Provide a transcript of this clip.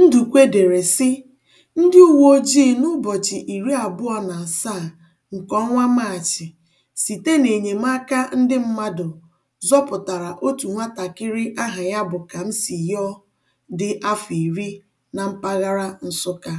Ndukwe dere sị: "Ndị uwe ojii n'ụbọchị iri abụọ na asaa nke ọnwa Maachị, site n'enyemaka ndị mmadụ, zọpụtara otu nwatakịrị aha ya bụ kamsi Kamsiyọ dị afọ iri na mpaghara Nsụka.